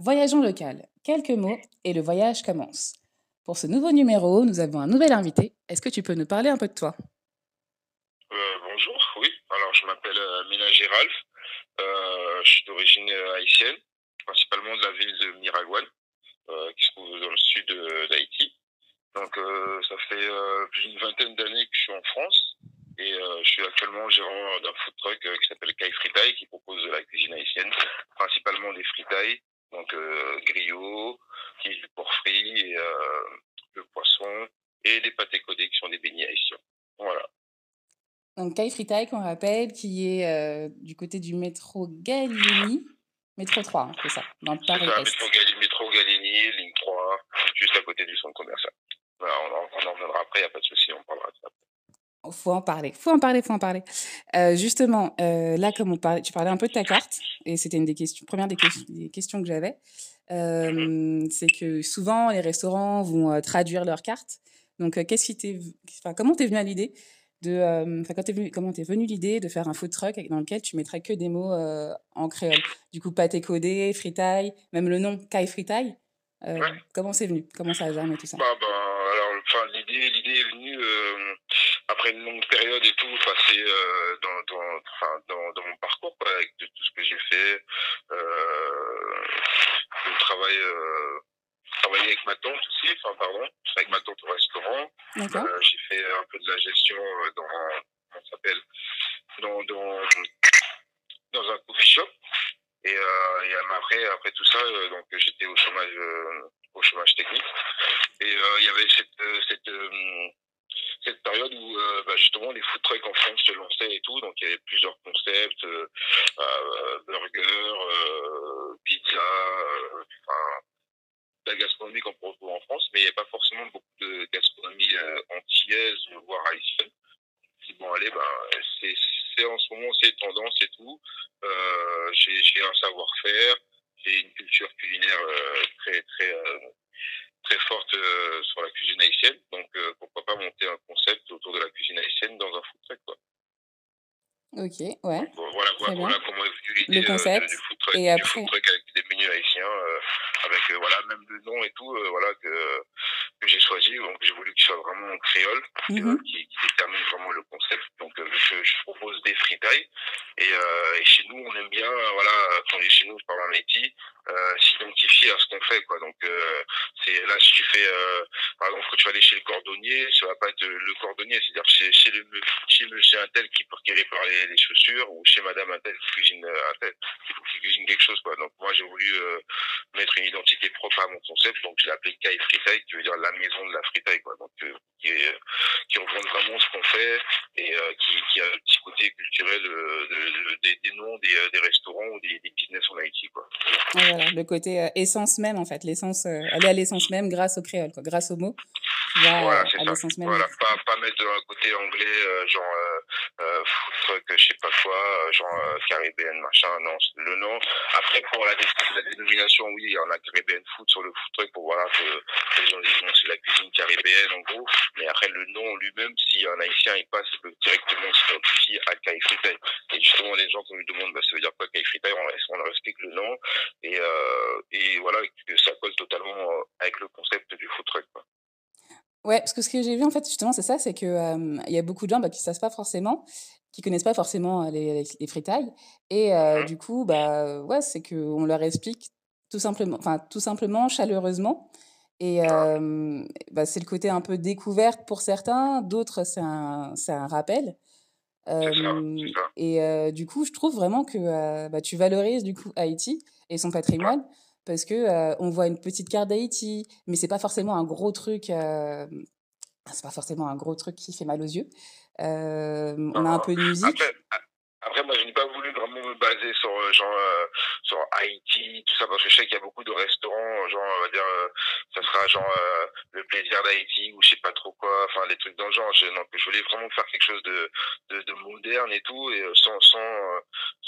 Voyageons local. Quelques mots et le voyage commence. Pour ce nouveau numéro, nous avons un nouvel invité. Est-ce que tu peux nous parler un peu de toi euh, Bonjour, oui. Alors, je m'appelle euh, Mila Giralf, Euh, je suis d'origine euh, haïtienne, principalement de la ville de Miragouane, euh, qui se trouve dans le sud euh, d'Haïti. Donc, ça fait plus d'une vingtaine d'années que je suis en France et je suis actuellement gérant d'un food truck qui s'appelle Kai Fritaille, qui propose de la cuisine haïtienne, principalement des fritailles donc euh, griot, qui est du porc frit, et, euh, le poisson, et les pâtés codés qui sont des beignets haïtiens. Voilà. Donc Kai Fritai, qu'on rappelle, qui est euh, du côté du métro Gallieni, métro 3, hein, c'est ça, dans le Paris ça, métro, Gallieni, métro Gallieni, ligne 3, juste à côté du centre commercial. Voilà, on, en, on en reviendra après, il n'y a pas de souci, on parlera de ça après. Faut en parler, faut en parler, faut en parler. Euh, justement, euh, là, comme on parlait, tu parlais un peu de ta carte, et c'était une des questions, première des, que des questions que j'avais, euh, c'est que souvent les restaurants vont euh, traduire leur carte. Donc, euh, qu'est-ce qui t'est, enfin, comment t'es venu à l'idée de, euh, enfin, comment t'es venu l'idée de faire un food truck dans lequel tu mettrais que des mots en créole. Du coup, pâté codé, fritaille, même le nom, kai fritaille. Ouais. Comment c'est venu Comment ça a germé tout ça bah, bah, alors, l'idée, l'idée est venue après une longue période et tout, enfin c'est euh, dans, dans, enfin, dans, dans, mon parcours quoi, avec de, tout ce que j'ai fait, euh, le travail, euh, travailler avec ma tante aussi, enfin pardon, avec ma tante au restaurant. Euh, j'ai fait un peu de la gestion euh, dans comment s'appelle dans, dans dans un coffee shop et, euh, et après après tout ça euh, donc j'étais au chômage euh, au chômage technique et il y avait cette cette cette période où euh, bah, justement les food trucks en France se lançaient et tout, donc il y avait plusieurs concepts, euh, euh burger, euh, pizza, euh, enfin, la gastronomie qu'on retrouve en France, mais il n'y a pas forcément beaucoup de gastronomie antillaise, voire haïtienne. Bon allez, bah, c'est en ce moment ces tendance et tout. Euh, j'ai un savoir-faire, j'ai une culture culinaire euh, très très euh, très forte euh, sur la cuisine haïtienne. Donc, euh, pourquoi pas monter un concept autour de la cuisine haïtienne dans un food truck, quoi. Ok, ouais. Donc, voilà, voilà, voilà, comment est venue l'idée euh, du, food truck, et après... du food truck avec des menus haïtiens, euh, avec euh, voilà, même le nom et tout, euh, voilà, que, que j'ai choisi. Donc, j'ai voulu qu'il soit vraiment en créole, mm -hmm. qui, qui, détermine vraiment le concept. Donc, je, je, propose des fritailles. Et, et, chez nous, on aime bien, voilà, quand je chez nous, je parle en Haïti, euh, s'identifier à ce qu'on fait quoi donc euh, c'est là si tu fais euh, par exemple quand tu vas aller chez le cordonnier ça va pas être le cordonnier c'est-à-dire chez, chez le chez monsieur un tel qui qui répare les, les chaussures ou chez madame un tel qui cuisine euh, un tel qui, cuisine quelque chose quoi donc moi j'ai voulu euh, mettre une identité propre à mon concept, donc je l'ai appelé Kai Freetail, qui veut dire la maison de la freetail, quoi. Donc, euh, qui, est, euh, qui reprend vraiment ce qu'on fait et euh, qui, qui, a un petit côté culturel euh, de, de, des, des, noms des, euh, des restaurants ou des, des, business en Haïti, quoi. Ah, voilà, le côté euh, essence même, en fait, l'essence, aller à l'essence même grâce au créole, quoi, grâce au mot. Là, voilà, c'est ça. Même voilà, pas, pas, mettre un côté anglais, genre euh, fuck, je sais pas quoi, euh, genre euh, Caribbean, machin, non, le nom. Après, pour la, la dénomination, oui, il y en a Caribbean Food sur le food truck pour voilà que les gens disent c'est la cuisine caribéenne en gros. Mais après, le nom lui-même, si un haïtien il passe directement sur le s'identifie à Kai Fritai. Et justement, les gens, quand ils demandent, bah, ça veut dire quoi Kai Fritai, on, on respecte le nom et, euh, et voilà, ça colle totalement euh, avec le concept du food truck. Quoi. Ouais, parce que ce que j'ai vu, en fait, justement, c'est ça, c'est qu'il euh, y a beaucoup de gens bah, qui ne savent pas forcément, qui connaissent pas forcément les, les fritailles. Et euh, du coup, bah, ouais, c'est qu'on leur explique tout simplement, tout simplement, chaleureusement. Et euh, bah, c'est le côté un peu découverte pour certains, d'autres, c'est un, un, rappel. Ça, et du coup, je trouve vraiment que bah, tu valorises du coup Haïti et son patrimoine. parce que euh, on voit une petite carte d'Haïti, mais c'est pas forcément un gros truc. Euh, c'est pas forcément un gros truc qui fait mal aux yeux. Euh, on a un peu de musique. Après, après moi, je n'ai pas voulu vraiment me baser sur euh, genre euh, sur Haïti, tout ça, parce que je sais qu'il y a beaucoup de restaurants, genre, on va dire, euh, ça sera genre le plaisir d'Haïti ou je sais pas trop quoi, enfin des trucs dans le genre. Je, donc, je voulais vraiment faire quelque chose de, de, de moderne et tout, et sans sans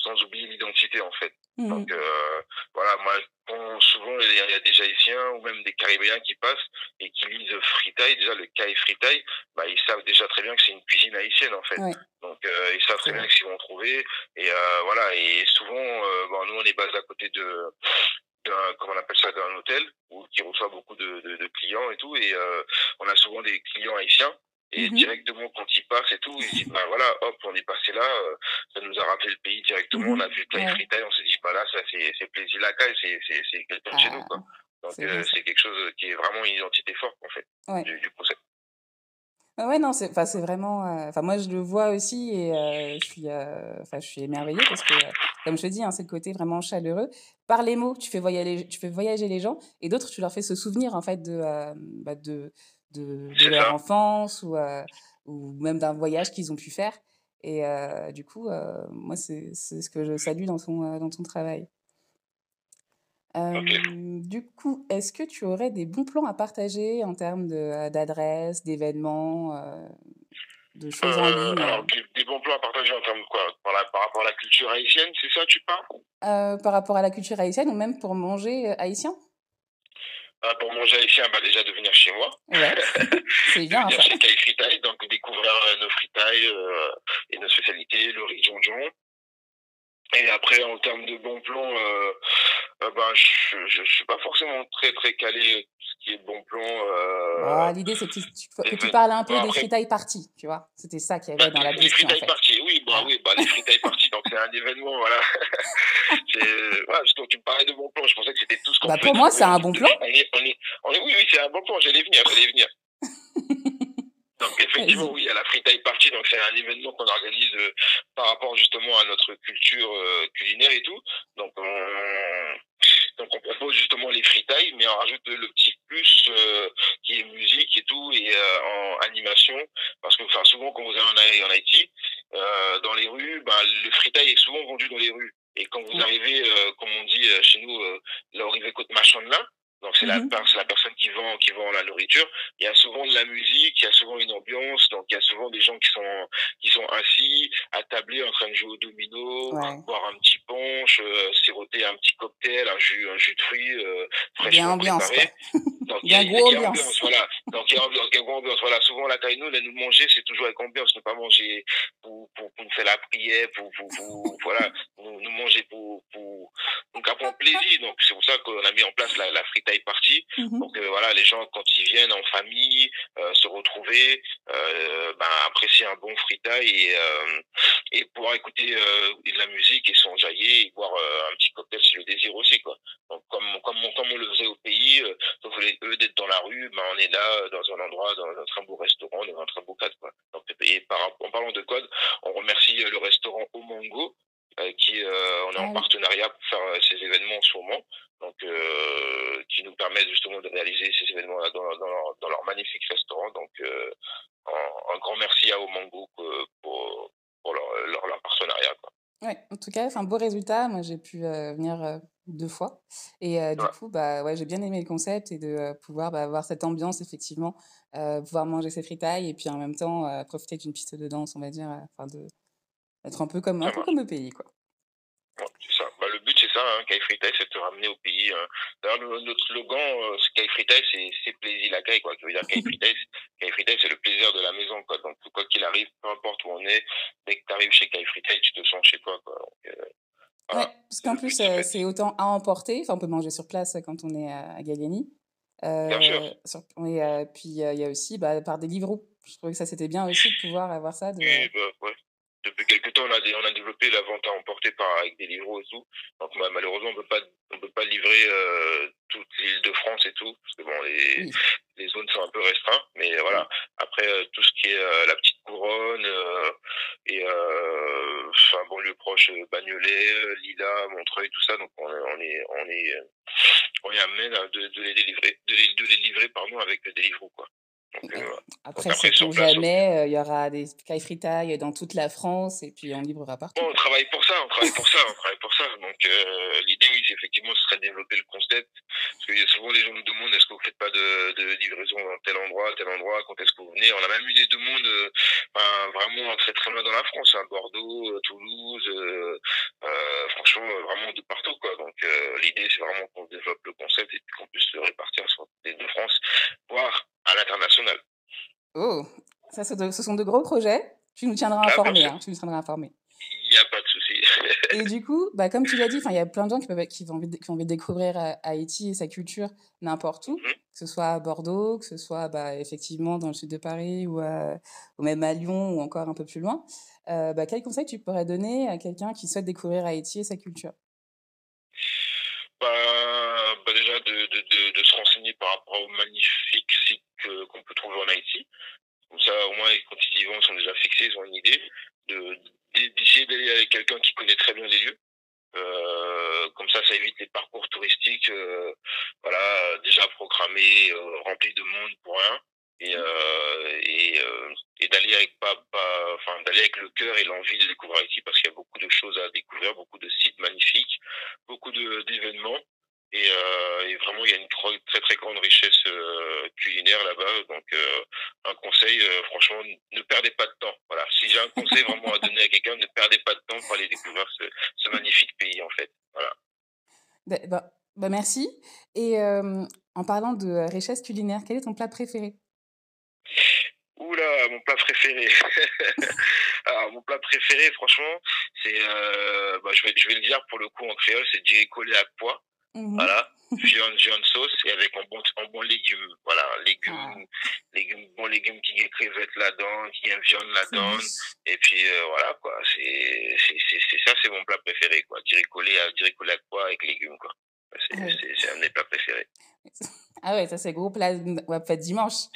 sans oublier l'identité en fait. Mmh. Donc euh, voilà, moi bon souvent il y, a, des Haïtiens ou même des Caribéens qui passent et qui lisent fritaille, déjà le caille fritaille, bah, ils savent déjà très bien que c'est une cuisine haïtienne en fait. Ouais. Donc euh, ils savent très bien que qu'ils vont trouver. Et euh, voilà, et souvent, euh, bon, nous on est basé à côté de, d'un comment on appelle ça d'un hôtel où qui reçoit beaucoup de, de, de, clients et tout et euh, on a souvent des clients haïtiens et mmh. directement quand il part et tout, ils disent bah voilà, hop, on est passé là, euh, ça nous a rappelé le pays directement, mmh. on a vu Taille ouais. Fritaille, on s'est dit bah là ça c'est c'est plaisir la caille, c'est c'est c'est quelqu'un ah, de chez nous ah, quoi. Donc c'est euh, quelque chose qui est vraiment une identité forte en fait ouais. du, du, concept. Ah ouais non c'est enfin c'est vraiment euh, enfin euh, moi je le vois aussi et euh, je suis enfin je suis émerveillée parce que comme je te dis hein, c'est le côté vraiment chaleureux par les mots tu fais voyager tu fais voyager les gens et d'autres tu leur fais se souvenir en fait de bah, de de, de leur ça. enfance ou, euh, ou même d'un voyage qu'ils ont pu faire. Et euh, du coup, euh, moi, c'est ce que je salue dans ton, dans ton travail. Euh, okay. Du coup, est-ce que tu aurais des bons plans à partager en termes d'adresses, d'événements, euh, de choses euh, en ligne alors, des, des, bons plans à partager en termes de quoi par, la, par, rapport à la culture haïtienne, c'est ça, tu parles Par rapport à la culture haïtienne ou même pour manger haïtien euh, pour manger ici, bah, déjà de venir chez moi. Ouais. C'est bien. venir ça. chez Kai Fritai, donc découvrir euh, nos fritailles euh, et nos spécialités, le riz jonjon. Et après, en termes de bon plan, euh, euh, ben, je, je, je, suis pas forcément très très calé ce qui est bon plan. Euh, ah, L'idée, c'est que tu, tu, que tu, parles un peu après, des fritailles parties, tu vois. C'était ça qui y avait dans la question. Des fritailles en fait. parties, oui, ah oui, bah, les free time parties, donc c'est un événement, voilà. ouais, justement, tu parlais de bon plan, je pensais que c'était tout ce qu'on bah, Pour moi, c'est un bon plan. On est, on est, on est, oui, oui, c'est un bon plan, j'allais venir, j'allais venir. Donc effectivement, oui, à la Free Thai Party, donc c'est un événement qu'on organise euh, par rapport justement à notre culture euh, culinaire et tout. Donc on, Donc on propose justement les freetiles, mais on rajoute le petit plus euh, qui est musique et tout, et euh, en animation, parce que enfin, souvent quand vous allez en, Haïti, euh, dans les rues, bah le freetail est souvent vendu dans les rues. Et quand vous oui. arrivez, euh, comme on dit euh, chez nous, euh, là, arrivez côte machonne là, donc c'est mm la, mhm. la personne vend, qui vend la nourriture, il y a souvent de la musique, il y a souvent une ambiance, donc il y a souvent des gens qui sont, qui sont assis, attablés, en train de jouer au domino, ouais. boire un petit punch, euh, siroter un petit cocktail, un jus, un jus de fruits, euh, fraîchement préparé. il y a, ambiance. voilà. Donc il y a ambiance, il y a prend plaisir. Donc c'est pour ça qu'on a mis en place la, la free party. Mm -hmm. Donc euh, voilà, les gens quand ils viennent en famille, euh, se retrouver, euh, bah, apprécier un bon free time et, euh, et pouvoir écouter euh, de la musique et s'enjailler et boire euh, un petit cocktail si le désir aussi quoi. Donc comme comme on, comme on le faisait au pays, sauf restaurant, dans un très beau cadre quoi. Donc, et par, en parlant de code, restaurant avec qui euh, on est en ah partenariat pour faire euh, ces événements en ce moment, donc euh, qui nous permettent justement de réaliser ces événements dans, dans, leur, dans leur magnifique restaurant. Donc un, un, grand merci à Omango pour, pour leur, leur, leur partenariat. Quoi. en tout cas, c'est un beau résultat. Moi, j'ai pu euh, venir euh, deux fois. Et euh, ouais. du coup, bah, ouais, j'ai bien aimé le concept et de pouvoir bah, avoir cette ambiance, effectivement, pouvoir manger ses fritailles et puis en même temps profiter d'une piste de danse, on va dire, enfin de, Être un peu comme, un peu comme le pays, quoi. Ouais, c'est ça. Bah, le but, c'est ça, hein, c'est de te ramener au pays. Hein. D'ailleurs, notre slogan, euh, c'est c'est plaisir la l'accueil, quoi. Ça veut dire Kai c'est le plaisir de la maison, quoi. Donc, quoi qu'il arrive, peu importe où on est, dès que tu arrives chez Kai tu te sens chez toi, quoi. Donc, euh, voilà. ouais, parce qu'en plus, euh, c'est autant à emporter. Enfin, on peut manger sur place euh, quand on est euh, à Galliani. bien sûr. Euh, sur, et puis, il y a aussi bah, par des livres. Je trouvais que ça, c'était bien aussi de pouvoir avoir ça. De... Et, bah, ouais. depuis quelques temps, on a, des, on a développé la vente à emporter par, avec des livreaux et tout. Donc malheureusement, on ne peut pas livrer euh, toute l'île de France et tout, parce que bon, les, oui. les zones sont un peu restreintes. Mais voilà, après euh, tout ce qui est euh, la petite couronne euh, et euh, enfin banlieue proche, euh, Bagnolet, Lila, Montreuil, tout ça. Donc on, on est, on est, on est amené de, de, les délivrer, de les, de les livrer pardon avec des livreaux quoi. Donc, euh, après, après c'est pour jamais, euh, il euh, y aura des caille dans toute la France et puis on librera partout. Bon, on travaille pour ça, on travaille pour ça, on travaille pour ça. Donc euh, l'idée, si effectivement ce serait développer le concept. Parce que souvent les gens nous demandent est-ce que vous faites pas de, de livraison dans tel endroit, tel endroit, quand est-ce que vous venez On a même eu des demandes euh, ben, vraiment très très loin dans la France, hein, Bordeaux, euh, Toulouse, euh, euh, franchement euh, vraiment de partout quoi. Donc euh, l'idée c'est vraiment qu'on développe le concept et puis qu'on puisse se répartir sur les deux France, voire à l'international. Oh, ça de ce sont de gros projets. Tu nous tiendras ah, informés. Ah, hein, tu nous tiendras informés. Il n'y a pas de souci. et du coup, bah, comme tu l'as dit, il y a plein de gens qui, peuvent, qui, ont envie de, qui ont envie de découvrir euh, Haïti et sa culture n'importe où, mm -hmm. que ce le sud de Paris ou, à, euh, ou même à Lyon ou encore un peu plus loin. Euh, bah, tu pourrais donner à quelqu'un qui souhaite découvrir Haïti et sa culture bah, d'essayer d'aller avec quelqu'un qui connaît très bien les lieux. Euh, comme ça, ça évite les parcours touristiques, euh, voilà, déjà programmés, euh, remplis de monde pour rien, et mmh. euh, et, euh, et d'aller avec pas, pas enfin d'aller avec le cœur et l'envie de découvrir ici, parce qu'il y a beaucoup de choses à découvrir, beaucoup de sites magnifiques, beaucoup de d'événements, Et, euh, et, vraiment, il y a une très très, très grande richesse euh, culinaire là-bas. Donc, euh, un conseil, euh, franchement, ne perdez pas de temps. Voilà. Si j'ai un conseil vraiment à donner à quelqu'un, ne perdez pas de temps pour aller découvrir ce, ce magnifique pays, en fait. Voilà. Bah, bah, bah merci. Et euh, en parlant de richesse culinaire, quel est ton plat préféré Oula, mon plat préféré. Alors, ah, mon plat préféré, franchement, c'est, euh, bah, je, vais, je vais le dire pour le coup en créole, c'est Djeko à pois. Mmh. Voilà. Viande, viande sauce et avec un bon, un bon légume. Voilà, légumes, ah. légume bon légume qui y a crevettes là-dedans, qui y viande là-dedans. Et puis, euh, voilà, quoi. C'est, c'est, ça, c'est mon plat préféré, quoi. Direct collé à, direct collé à quoi avec légumes, quoi. C'est, ah un des plats préférés. Ah ouais, ça, c'est gros plat, on va faire dimanche.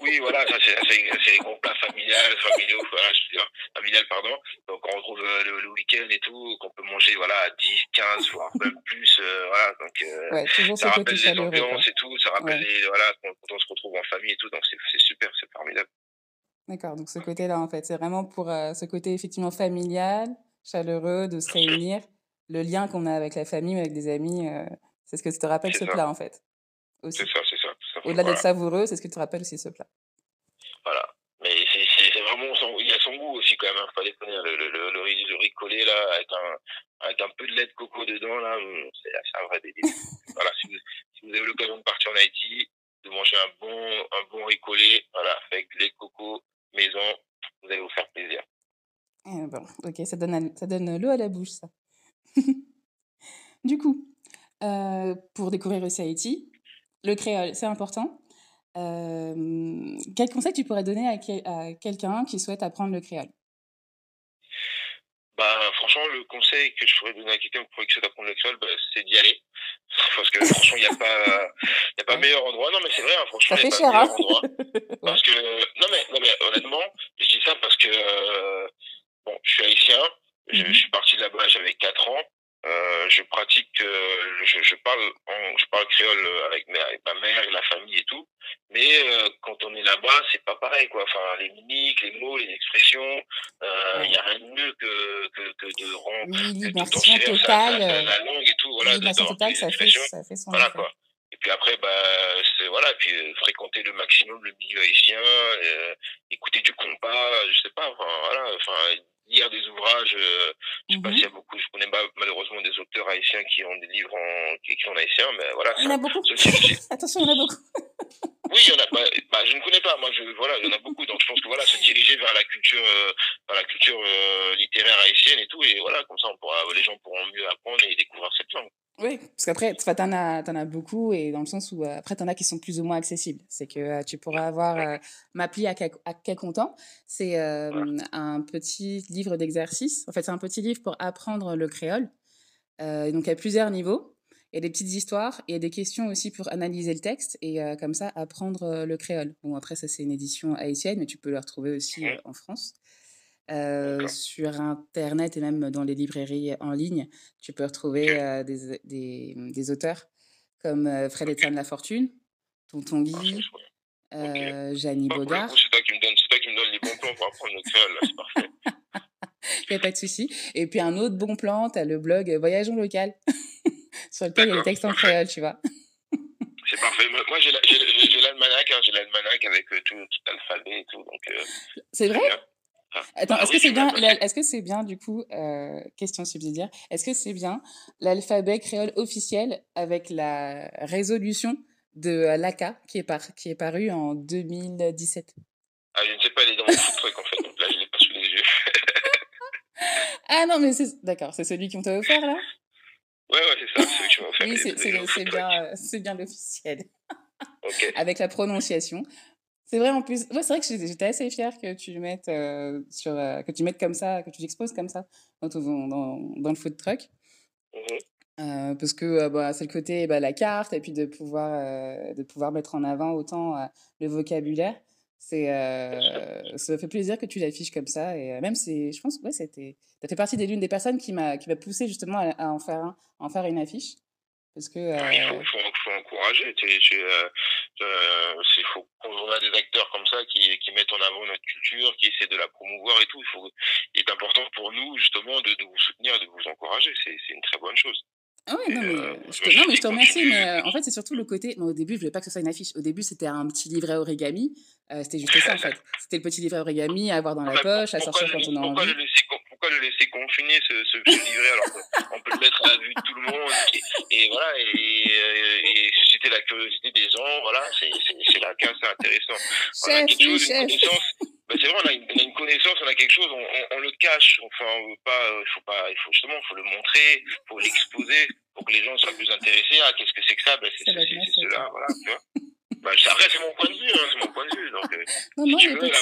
Oui, voilà, ça c'est les gros plats familiales, familiaux, voilà, je veux dire, familiales, pardon. Donc on retrouve euh, le, le week-end et tout, qu'on peut manger voilà, à 10, 15, voire même plus. Euh, voilà, donc, euh, ouais, ça rappelle les ambiances et tout, ça rappelle ouais. les, voilà, quand, on se retrouve en famille et tout, donc c'est super, c'est formidable. D'accord, donc ce côté-là, en fait, c'est vraiment pour euh, ce côté effectivement familial, chaleureux, de se réunir, le lien qu'on a avec la famille, avec des amis, euh, c'est ce que tu te rappelle ce ça. plat, en fait. C'est ça, c'est Au-delà voilà. d'être savoureux, c'est ce qui te rappelle aussi ce plat. Voilà. Mais c'est vraiment, son, il y a son goût aussi quand même, hein, faut pas déconner. Le, le, le, le, riz, le riz collé là, avec un, avec un peu de lait de coco dedans là, c'est un vrai délire. voilà, si vous, si vous avez l'occasion de partir en Haïti, de manger un bon, un bon riz collé, voilà, avec lait de coco maison, vous allez vous faire plaisir. Et eh bon, ok, ça donne, ça donne l'eau à la bouche ça. du coup, euh, pour découvrir aussi Haïti, Le créole, c'est important. Euh, quel conseil tu pourrais donner à, quel, à quelqu'un qui souhaite apprendre le créole bah, Franchement, le conseil que je pourrais donner à quelqu'un qui souhaite apprendre le créole, bah, c'est d'y aller. Parce que franchement, il n'y a pas, y a pas meilleur endroit. Non, mais c'est vrai, hein, franchement, il n'y a pas cher, meilleur hein endroit. Parce que, non mais, non, mais, honnêtement, je dis ça parce que, euh, bon, je suis haïtien, je, mm-hmm. je suis parti de là-bas, j'avais 4 ans. Euh, je pratique, euh, je, je, parle, on, je parle créole euh, avec ma, avec ma, mère et la famille et tout. Mais euh, quand on est là-bas, c'est pas pareil, quoi. Enfin, les mimiques, les mots, les expressions, il euh, ouais. n'y a rien de mieux que, que, que de rendre oui, l'immersion totale, la, la, euh, la, langue et tout, voilà, l'immersion totale, ça fait, ça fait son voilà, effet. quoi. Et puis après, bah, c'est voilà, puis euh, fréquenter le maximum le milieu haïtien, euh, écouter du compas, je sais pas, enfin voilà, enfin lire des ouvrages euh, Je sais mhm. pas s'il y a beaucoup, je connais malheureusement des auteurs haïtiens qui ont des livres en, qui écrits en haïtien, mais voilà. Il y en a beaucoup. Attention, il y en a beaucoup. oui, il y en a. Bah, bah, je ne connais pas. Moi, je, voilà, il y en a beaucoup. Donc, je pense que voilà, se diriger vers la culture, euh, vers la culture euh, littéraire haïtienne et tout, et voilà, comme ça, on pourra, les gens pourront mieux apprendre et découvrir cette langue. Oui, parce qu'après, tu en as, en as beaucoup et dans le sens où euh, après, tu en as qui sont plus ou moins accessibles. C'est que euh, tu pourras avoir euh, Mapli à, quel, à quel content. C'est euh, un petit livre d'exercice. En fait, c'est un petit livre pour apprendre le créole. Euh, donc, à plusieurs niveaux. Il y a des petites histoires et des questions aussi pour analyser le texte et euh, comme ça, apprendre le créole. Bon, après, ça, c'est une édition haïtienne, mais tu peux le retrouver aussi en France. Euh, sur Internet et même dans les librairies en ligne, tu peux retrouver euh, des, euh, des, mmh, des, auteurs comme euh, Fred Etienne ah, okay. La Fortune, Tonton Guy, okay. Janie ok ok C'est toi, qui me donne les bons plans pour apprendre ok ok c'est parfait. Il n'y a pas de souci. Et puis un autre bon plan, tu as le blog Voyageons local, sur lequel il y a les textes en créole, tu vois. c'est parfait. Moi, ok j'ai l'almanach, hein, j'ai l'almanach avec euh, tout, tout l'alphabet et tout. C'est vrai? Ah, Attends, est-ce que c'est bien, est-ce que c'est bien du coup, euh, question subsidiaire, est-ce que c'est bien l'alphabet créole officiel avec la résolution de l'ACA qui est, par, qui est parue en 2017 Ah, je ne sais pas, elle est dans mon truc en fait, donc là je l'ai pas sous les yeux. ah non, mais c'est, d'accord, c'est celui qu'on t'a offert là Ouais, ouais, c'est ça, celui que tu m'as offert. oui, c'est, bien, c'est bien l'officiel. ok avec la prononciation. C'est vrai en plus. Ouais, c'est vrai que j'étais assez fière que tu le mettes euh, sur, euh, que tu mettes comme ça, que tu exposes comme ça dans, ton, dans, dans, le food truck. Mm -hmm. euh, parce que euh, bah, c'est le côté bah, la carte et puis de pouvoir euh, de pouvoir mettre en avant autant euh, le vocabulaire. C'est ça fait plaisir que tu l'affiches comme ça et même c'est je pense ouais c'était ça fait partie des l'une des personnes qui m'a qui m'a poussé justement à, à, en faire un, à en faire une affiche. Parce que, ah euh... Il faut, faut, faut encourager. Il euh, euh, faut, on a des acteurs comme ça qui, qui, mettent en avant notre culture, qui essaient de la promouvoir et tout. Il, faut, il est important pour nous, justement, de, de vous soutenir, de vous encourager. C'est une très bonne chose. Ah ouais, non, mais, euh, je te, non, mais je te remercie, mais euh, en fait, c'est surtout le côté. Bon, au début, je voulais pas que ce soit une affiche. Au début, c'était un petit livret origami. Euh, c'était juste ça, en fait. C'était le petit livret origami à avoir dans ah la poche, à sortir quand on a envie. Le laisser, pourquoi le laisser confiner, ce, ce, ce livret, alors qu'on peut le mettre à la vue de tout le monde Et, et voilà, et, et, et, susciter la curiosité des gens, voilà, c'est là qu'un c'est intéressant. On a quelque chose, une connaissance, ben c'est vrai, on a, une, on a, une, connaissance, on a quelque chose, on, on, on le cache, enfin, on veut pas, il euh, faut pas, il faut justement, faut le montrer, faut l'exposer pour que les gens soient plus intéressés. Ah, qu'est-ce que c'est que ça ben, C'est ceci, c'est cela, voilà, tu vois. Ben, après, c'est mon point de vue, hein, c'est mon point de vue. Donc, euh, non, si non, tu veux, là,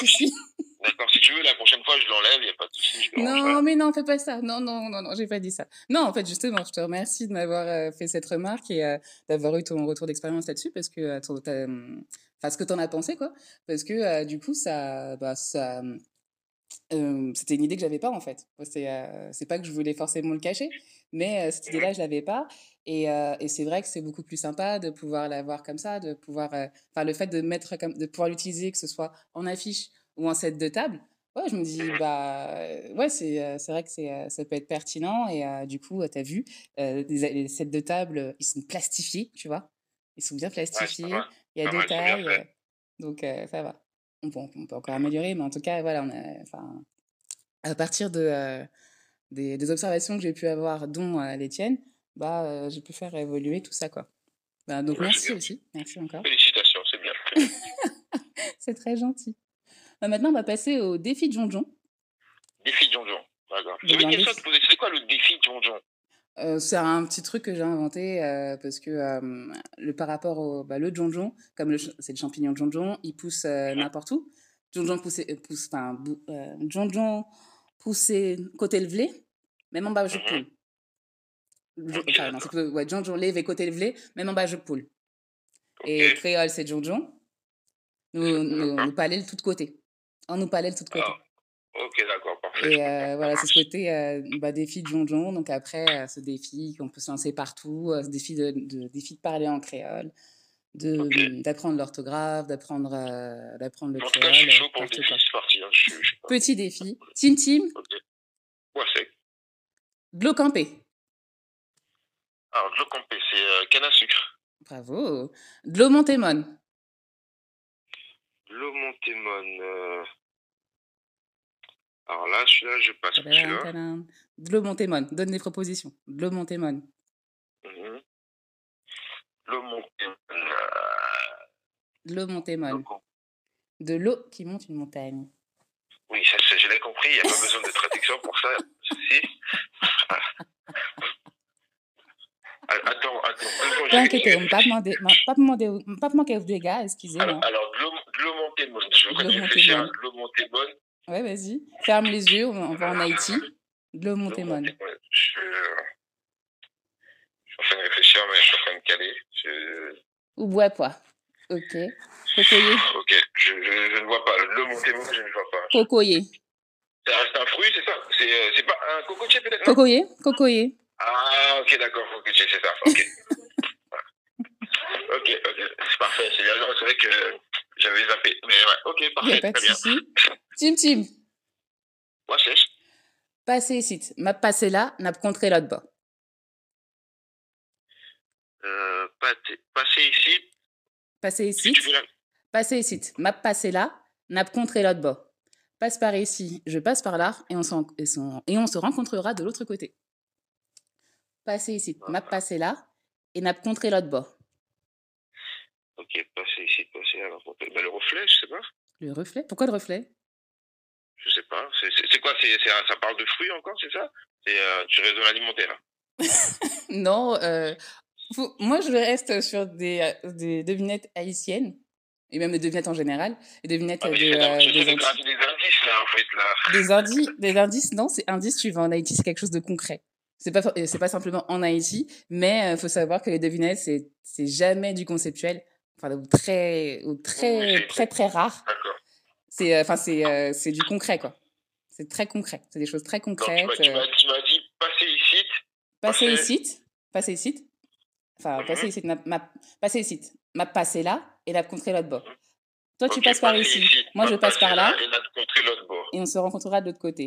tu veux, la prochaine fois, je l'enlève, il n'y a pas de souci. Non, mais non, fais pas ça. Non, non, non, non, j'ai pas dit ça. Non, en fait, justement, je te remercie de m'avoir euh, fait cette remarque et euh, d'avoir eu ton retour d'expérience là-dessus parce que, euh, enfin, ce que t'en as pensé, quoi. Parce que, euh, du coup, ça, bah, ça, euh, c'était une idée que j'avais pas, en fait. C'est, euh, c'est pas que je voulais forcément le cacher, mais cette idée-là, je l'avais pas. Et, euh, et, c'est vrai que c'est beaucoup plus sympa de pouvoir l'avoir comme ça, de pouvoir, enfin, euh, le fait de mettre, comme, de pouvoir l'utiliser, que ce soit en affiche ou en set de table, Ouais, je me dis, bah, ouais, c'est, c'est vrai que c'est, ça peut être pertinent. Et euh, du coup, tu as vu, euh, les, sets de table, ils sont plastifiés, tu vois. Ils sont bien plastifiés. Ouais, il y a deux tailles. Euh, donc, ça va. On peut, on peut, encore améliorer, mais en tout cas, voilà, on a, à partir de, des, des, observations que j'ai pu avoir, dont les tiennes, bah, j'ai pu faire évoluer tout ça, quoi. Bah, donc, ouais, merci aussi. Merci encore. Félicitations, c'est bien. c'est très gentil. Euh, maintenant, on va passer au défi de Jonjon. Défi de Jonjon, d'accord. J'avais une question à te poser. C'est quoi le défi de Jonjon euh, c'est un petit truc que j'ai inventé euh, parce que euh, le, par rapport au bah, le jonjon, comme le, c'est le champignon de jonjon, il pousse euh, ouais. n'importe où. Jonjon poussé, euh, pousse, enfin, jonjon poussé côté levelé, mhm. même en bas je poule. Enfin, ouais, jonjon lève et côté levelé, même en bas je poule. Okay. Et créole, c'est jonjon. Nous, nous, nous, de un opalel tout de côté. Ah, ok, d'accord, parfait. Et euh, voilà, c'est ce côté euh, bah, défi de jonjon. Donc après, ce défi qu'on peut se lancer partout, ce défi de, de, défi de parler en créole, de okay. Mmh, l'orthographe, d'apprendre d'apprendre le créole. je suis chaud pour le défi, c'est parti. Hein, je, je... Petit défi. Tim Tim. Okay. Ouais, c'est. Glocampé. Alors, Glocampé, c'est canne à sucre. Bravo. Blomontémon. Euh... Alors là, celui-là, je passe. Blomontémon, donne des propositions. Blomontémon. Mmh. Blomontémon. Euh, de l'eau qui monte une montagne. Oui, ça, je l'ai compris, il n'y a pas besoin de traduction pour ça, pas Ah, attends, attends. T'inquiète, on ne pas demander, des gars, excusez-moi. Alors, alors Glomontémon, je veux que Glomontémon. vas-y. Ferme les yeux, on va en Haïti. Euh, je suis en train de je suis en train de caler. je, ne vois pas. je ne vois un fruit, c'est ça C'est euh, pas un cocotier peut-être Cocoyer, cocoyer. Ah, ok, d'accord, ok, je sais ça. Ok. ok, ok, c'est parfait, c'est bien. C'est vrai que j'avais zappé. Mais ouais, ok, parfait. Pas très bien. Tim, Tim. Moi, c'est. Passez ici. M'a passé là, n'a contré là-bas. Euh, passez ici. Passez ici. Si la... Passez ici. M'a passé là, n'a contré là-bas. Passe par ici, je passe par là, et on, et, son... et on se rencontrera de l'autre côté. passer ici, ah, m'a passé là, et n'a contré l'autre bord. Ok, passer ici, passer là. Bah, le reflet, je sais pas. Le reflet Pourquoi le reflet Je sais pas. C'est quoi c est, c est, Ça parle de fruits encore, c'est ça C'est euh, du réseau alimentaire Non, euh, faut, moi je reste sur des, euh, des devinettes haïtiennes et même les devinettes en général, les devinettes ah, de, euh, des, des, indices. Des indices, là, en fait, là. Des, indices, des indices non, c'est indice, tu vas en Haïti, c'est quelque chose de concret. C'est pas euh, c'est pas simplement en Haïti, mais il euh, faut savoir que les devinettes c'est c'est jamais du conceptuel, enfin ou très ou très très très rare. C'est euh, enfin c'est c'est du concret quoi. C'est très concret, c'est des choses très concrètes. Donc, tu m'as dit passer ici. Passer ici, passer ici. Enfin, mm -hmm. passer ici, ma, ma, passer ici, ma passer là et la contrer l'autre bord. Toi, okay, tu passes par ici. ici. Moi, je passe par là. Et, bord. et on se rencontrera de l'autre côté.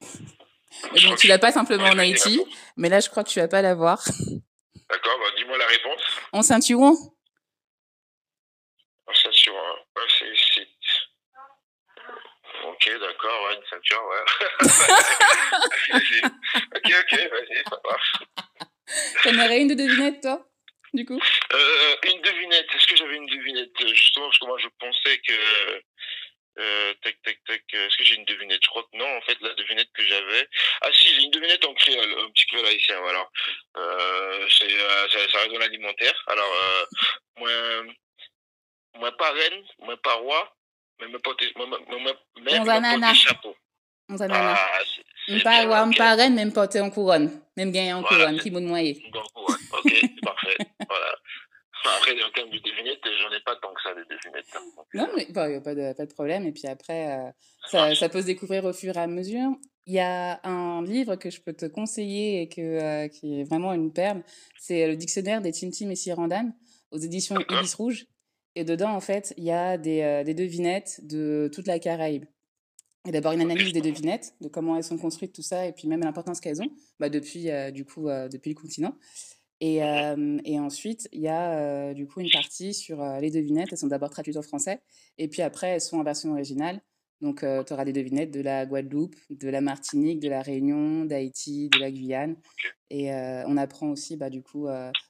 Et donc, tu l'as pas simplement en Haïti, mais là, je crois que tu vas pas l'avoir. D'accord, bah, dis-moi la réponse. En ceinturon En ceinturon, ouais, c'est. Ok, d'accord, ouais, une ceinture, ouais. ok, ok, vas-y, ça marche. T'en aurais une de devinette, toi du coup euh, Une devinette. Est-ce que j'avais une devinette euh, Justement, parce que moi, je pensais que Euh, tac, tac, tac. Euh, est-ce que j'ai une devinette Je crois que non, en fait, la devinette que j'avais. Ah si, j'ai une devinette en créole, un petit créole haïtien, voilà. Euh, c'est, euh, ça, ça un dans alimentaire Alors, euh, moi, moi pas reine, mais me porte, moi, moi, moi, moi, chapeau. On Ah, c'est, c'est pas roi, pas reine, mais porter en couronne. Même gagner en couronne, qui ma En couronne, ok, parfait. Voilà. Après, en termes de devinette, j'en ai pas tant que ça, des devinettes. Non, mais bon, y a pas de, pas de problème. Et puis après, euh, ça, ça, peut se découvrir au fur et à mesure. Il y a un livre que je peux te conseiller et que, euh, qui est vraiment une perle. C'est euh, le dictionnaire des Tintim et Sirandam aux éditions Ibis Rouge. Et dedans, en fait, il y a des, euh, des devinettes de toute la Caraïbe. Et d'abord une analyse des devinettes, de comment elles sont construites, tout ça, et puis même l'importance qu'elles ont, bah depuis, euh, du coup, euh, depuis le continent. Et, euh, et, ensuite, il y a euh, du coup une partie sur euh, les devinettes. Elles sont d'abord traduites en français et puis après, elles sont en version originale. Donc, tu auras des devinettes de la Guadeloupe, de la Martinique, de la Réunion, d'Haïti, de la Guyane. Et on apprend aussi, bah, du coup,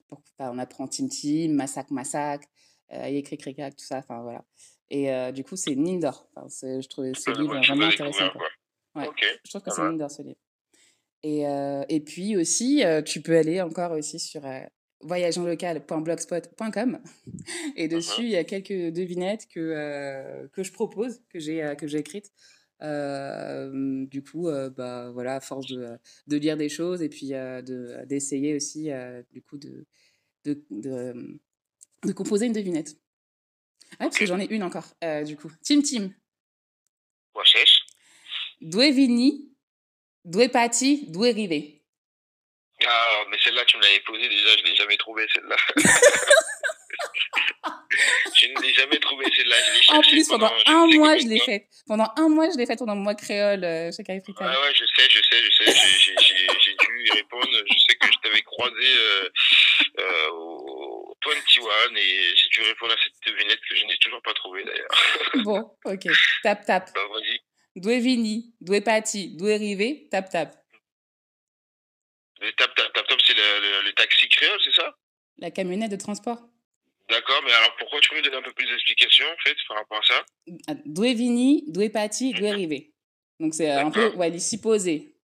pour, bah, on apprend Tim Tim, Massac Massac, Yékri Cricac, tout ça. Enfin, voilà. Et du coup, c'est une mine d'or. Enfin, je trouvais ce livre vraiment intéressant. Quoi. Ouais. Okay. Je trouve que c'est une mine d'or, ce livre. Et, et puis aussi, tu peux aller encore aussi sur voyageonlocal.blogspot.com et mmh dessus, il y a quelques devinettes que, que je propose, que j'ai que j'ai écrites. Euh, du coup, euh, bah, voilà, à force de, de, lire des choses et puis euh, d'essayer de, aussi, du coup, de, de, de de composer une devinette. Ah, okay. parce que j'en ai une encore, du coup. Tim Tim. Wesh. Dwevini D'où est parti, d'où Ah, mais celle-là, tu me l'avais posée déjà, je ne l'ai jamais trouvée, celle-là. je ne l'ai jamais trouvée, celle-là. Je en plus, pendant, pendant un mois, je l'ai faite. Pendant un mois, je l'ai faite pendant le mois créole euh, chez Africa. Ah ouais, je sais, je sais, je sais. J'ai dû y répondre. Je sais que je t'avais croisé euh, euh, au 21 et j'ai dû répondre à cette devinette que je n'ai toujours pas trouvée, d'ailleurs. bon, ok. Tap, tap. Bah, vas-y, due veni, due pati, due rive, tap tap. Et tap tap tap tap, c'est le, le, le taxi créole, c'est ça La camionnette de transport. D'accord, mais alors pourquoi tu peux me donner un peu plus d'explications en fait par rapport à ça ah, Due vini, due pati, due mhm. rive. Donc c'est euh, un peu, ouais, les supposés.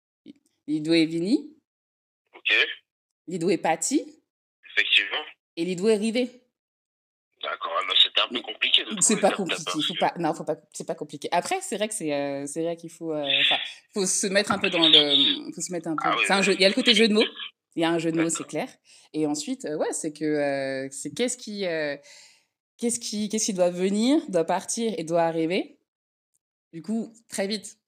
Les due vini. Ok. Les due pati. Effectivement. Et les due rive. D'accord, ah, c'était un peu compliqué. C'est pas compliqué, faut pas, non, faut pas, c'est pas compliqué. Après, c'est vrai que c'est, euh, c'est vrai qu'il faut, euh, enfin, euh, faut se mettre un peu dans le, faut se mettre un peu. Ah, oui, c'est un jeu. Il y a le côté jeu de mots. Il y a un jeu de mots, c'est clair. Et ensuite, euh, ouais, c'est que, euh, c'est qu'est-ce qui, qu'est-ce qui, qu'est-ce qui doit venir, doit partir et doit arriver. Du coup, très vite.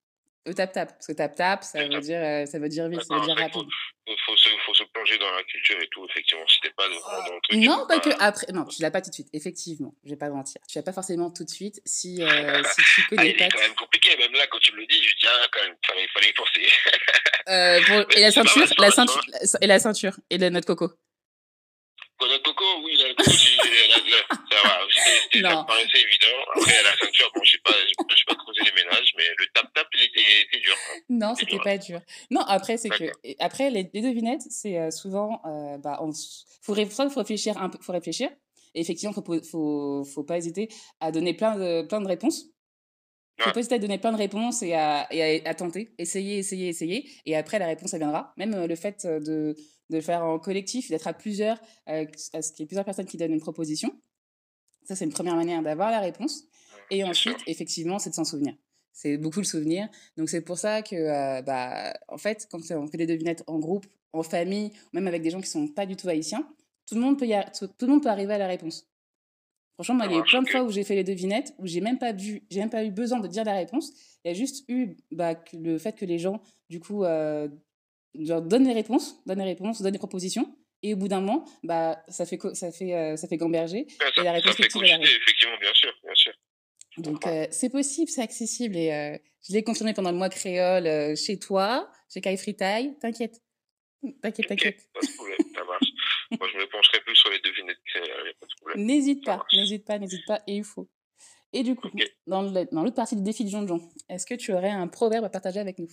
Au tap-tap, parce que tap-tap, ça, veut dire, euh, ça veut dire vite, ça veut dire rapide. Il faut, se, faut se plonger dans la culture et tout, effectivement, si t'es pas dans, le truc. Non, pas que après, non, tu l'as pas tout de suite, effectivement, je vais pas mentir. Tu l'as pas forcément tout de suite si, euh, si tu connais pas. C'est quand même compliqué, même là, quand tu me le dis, je dis, ah, quand même, il fallait, y penser. bon et la ceinture, la ceinture, et la ceinture, et notre coco. Notre coco, oui, la coco, ça va. C'était évident. Après, à la ceinture, bon, je sais pas, je sais pas creuser les ménages, mais le tap-tap, il était, était dur. Hein. Non, c'était dur, pas dur. Non, après, c'est que, après, les, les devinettes, c'est euh, souvent, euh, bah, on, faut, ré... soit faut réfléchir un peu, faut réfléchir. Et effectivement, faut, faut, faut pas hésiter à donner plein de, plein de réponses. Il faut peut être hésiter donner plein de réponses et à, et à, à, tenter, essayer, essayer, essayer. Et après, la réponse, elle viendra. Même euh, le fait euh, de, de faire en collectif, d'être à plusieurs, euh, à ce qu'il y ait plusieurs personnes qui donnent une proposition, Ça, c'est une première manière d'avoir la réponse. Et ensuite, effectivement, c'est de s'en souvenir. C'est beaucoup le souvenir. Donc, c'est pour ça que, euh, bah, en fait, quand on fait des devinettes en groupe, en famille, même avec des gens qui sont pas du tout haïtiens, tout le monde peut, y a... tout, le monde peut arriver à la réponse. Franchement, moi, il y a eu plein de fois où j'ai fait les devinettes, où j'ai même pas vu, j'ai même pas eu besoin de dire la réponse. Il y a juste eu bah, le fait que les gens, du coup, euh, genre, donnent les réponses, donnent les réponses, donnent les propositions. Et au bout d'un moment, bah, ça fait, ça fait, euh, ça fait gamberger. Ah, ça, et la réponse collider, Effectivement, bien sûr, bien sûr. Donc, euh, c'est possible, c'est accessible. Et euh, je l'ai confirmé pendant le mois créole euh, chez toi, chez Kai Fritaille. T'inquiète. T'inquiète, t'inquiète. Pas de problème, ça marche. Moi, je me pencherai plus sur les devinettes créoles, pas de problème. N'hésite pas, n'hésite pas, n'hésite pas, et il faut. Et du coup, okay. dans l'autre partie du défi de jonjon est-ce que tu aurais un proverbe à partager avec nous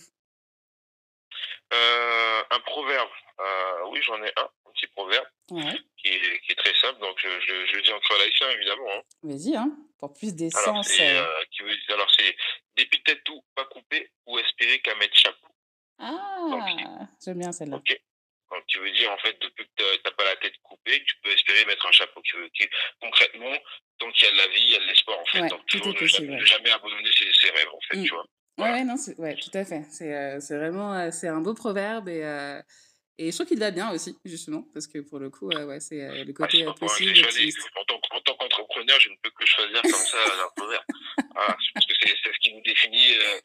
euh, Un proverbe euh, Oui, j'en ai un. petit proverbe ouais. qui, est, qui, est, très simple. Donc, je, je, je le dis en croatien, évidemment. Hein. Vas-y, hein, pour plus d'essence. Euh. Euh, alors, c'est dépiter tout, pas couper ou espérer qu'à mettre chapeau. Ah, j'aime bien celle-là. Ok. Donc, tu veux dire, en fait, depuis que tu n'as pas la tête coupée, tu peux espérer mettre un chapeau. qui veux, qui, concrètement, tant qu'il y a de la vie, il y a de l'espoir, en fait. Ouais, Donc, toujours ne jamais, jamais, abandonner ses, ses, rêves, en fait, mm. tu vois. Voilà. Ouais, non, ouais, tout à fait. C'est euh, vraiment euh, c'est un beau proverbe et, euh, Et je trouve qu'il l'a bien aussi, justement, parce que pour le coup, euh, ouais, c'est euh, le côté ah, possible. Moi, choisi. En, tant, en tant qu'entrepreneur, je ne peux que choisir comme ça l'entrepreneur. voilà, je pense que c'est ce qui nous définit euh,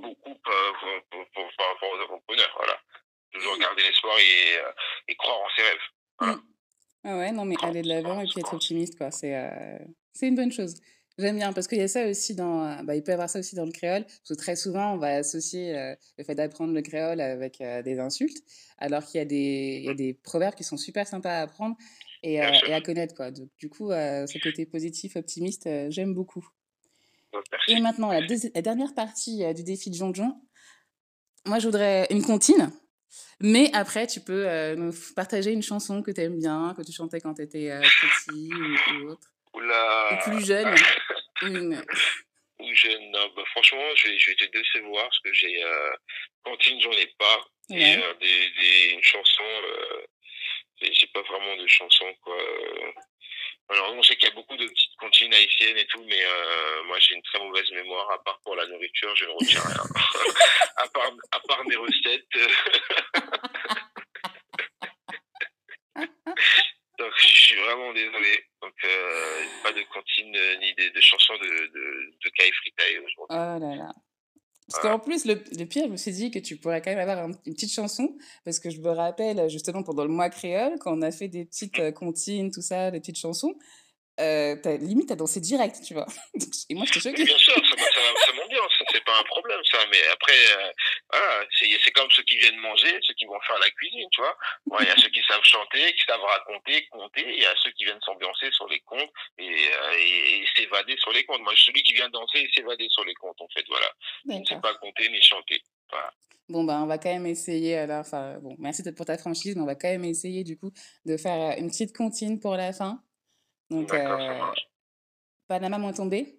beaucoup euh, par rapport aux entrepreneurs. Voilà. Toujours mm. garder l'espoir et, euh, et, croire en ses rêves. Voilà. Mm. Ah ouais, non, mais aller de l'avant et puis être optimiste, quoi. C'est une bonne chose. J'aime bien parce qu'il y a ça aussi dans. Euh, bah, il peut y avoir ça aussi dans le créole. Parce que très souvent, on va associer euh, le fait d'apprendre le créole avec euh, des insultes, alors qu'il y, y, a des proverbes qui sont super sympas à apprendre et, euh, et à connaître. Quoi. Donc, du coup, euh, ce côté positif, optimiste, euh, j'aime beaucoup. Et maintenant, la, la dernière partie du défi de Jonjon. Moi, je voudrais une comptine. Mais après, tu peux nous partager une chanson que tu aimes bien, que tu chantais quand tu étais petit ou, ou autre. Oula. Ou plus jeune. mmh. Ou jeune. Non, bah, franchement, je vais, je vais, te décevoir parce que j'ai. Euh, cantine, j'en ai pas. Ouais. Et euh, des, des, une chanson. Euh, j'ai pas vraiment de chanson, quoi. Alors, on sait qu'il y a beaucoup de petites cantines haïtiennes et tout, mais euh, moi, j'ai une très mauvaise mémoire. À part pour la nourriture, je ne retiens rien. à, part, à part mes recettes. Donc je suis vraiment désolé. Donc euh, pas de cantine euh, ni de, de chansons de, de, de Kai Fritai aujourd'hui. Oh là là. Parce voilà. qu'en plus, le, le, pire, je me suis dit que tu pourrais quand même avoir un, une petite chanson, parce que je me rappelle justement pendant le mois créole, quand on a fait des petites mm. euh, comptines, tout ça, des petites chansons, euh, as, limite, t'as dansé direct, tu vois. Et moi, je te choquée. Bien sûr, ça, ça, ça, pas un problème ça, mais après, euh, voilà, c'est comme ceux qui viennent manger, ceux qui vont faire la cuisine, tu vois. Il ouais, y a ceux qui savent chanter, qui savent raconter, compter, il y a ceux qui viennent s'ambiancer sur les comptes et, euh, et, et s'évader sur les comptes. Moi, celui qui vient danser et s'évader sur les comptes, en fait, voilà. Je ne sais pas compter ni chanter. Voilà. Bon, ben, on va quand même essayer, alors, enfin, bon, merci pour ta franchise, mais on va quand même essayer, du coup, de faire une petite comptine pour la fin. Donc, euh, Panama moins tombé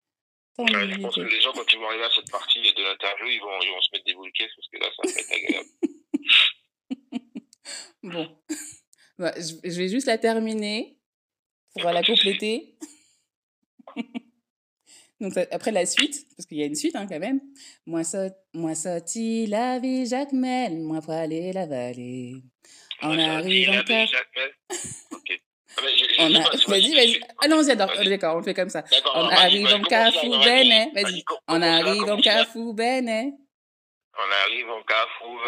Ouais, je pense que les gens, quand ils vont cette partie de l'interview, ils ils vont se mettre des boules parce que là, ça va être agréable. bon. je vais juste la terminer pour la compléter. Donc après la suite, parce qu'il y a une suite hein, quand même. Ah, on a... Vas-y, vas-y. Ah Vas on fait comme ça. On arrive en Carrefour bene. Vas-y. On arrive en Carrefour On arrive en Carrefour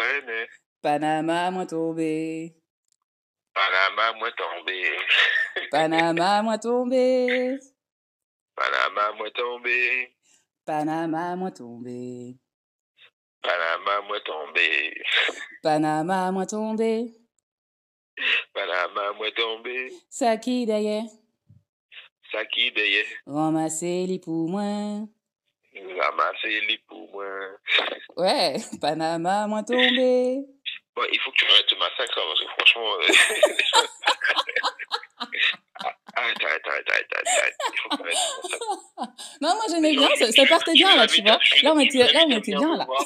Panama, moi Panama, moi Panama, moi Panama, moi Panama, moi Panama, moi Panama, moi Voilà, maman est tombée. Sa ki deye. Sa ki deye. Ramase li pou mwen. Ramase li Ouais, Panama mwen tombé. Bon, il faut que tu arrêtes ce parce que franchement... Euh, ah ah ah ah ah ah ah ah ah Non, moi j'aimais bien, ça, ça partait bien là, tu vois. Là on était, là, on était bien là. ah voilà.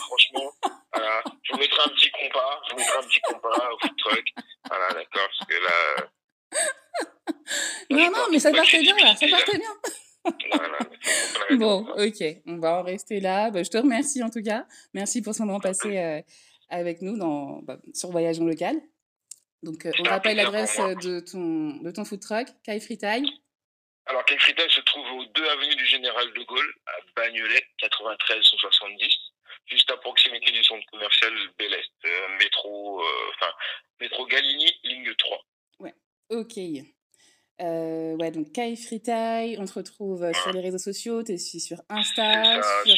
Je vous mettrai un petit compas, je vous mettrai un petit compas au food truck. Voilà, d'accord, parce que là. Euh, non, non, mais ça partait bien là, ça partait bien. bon, ok, on va en rester là. Bah, je te remercie en tout cas. Merci pour ce moment passé euh, avec nous dans, bah, sur ah Local. Donc, euh, on rappelle l'adresse euh, de ton, de ton food truck, Kai Fritaille. Alors, Kai Fritaille se trouve aux 2 avenue du Général de Gaulle, à Bagnolet, 93 170, juste à proximité du centre commercial Bel Est, euh, métro, euh, métro Galigny, ligne 3. Ouais, ok. Euh, ouais, donc Kai Fritaille, on te retrouve ouais. Euh, sur les réseaux sociaux, tu es sur Insta, ça, sur,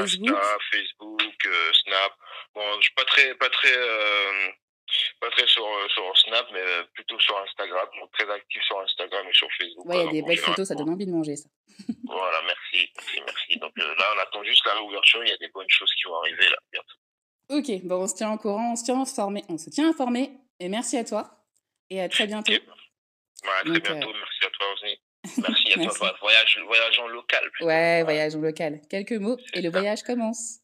Facebook. Insta, Facebook, Snap. Bon, je suis pas très, pas très pas très sur, euh, sur Snap, mais euh, plutôt sur Instagram. Donc très actif sur Instagram et sur Facebook. Ouais, il y a des belles photos, ça donne envie de manger, ça. voilà, merci, merci, merci. Donc euh, là, on attend juste la réouverture. Il y a des bonnes choses qui vont arriver là bientôt. Ok, bon, on se tient courant, on se tient informé, on se tient informé. Et merci à toi. Et à très bientôt. Okay. Ouais, à très Donc, bientôt. Euh... Merci à toi aussi. Merci à toi. Voyage, local. Plutôt. Ouais, local. Quelques mots et le voyage commence.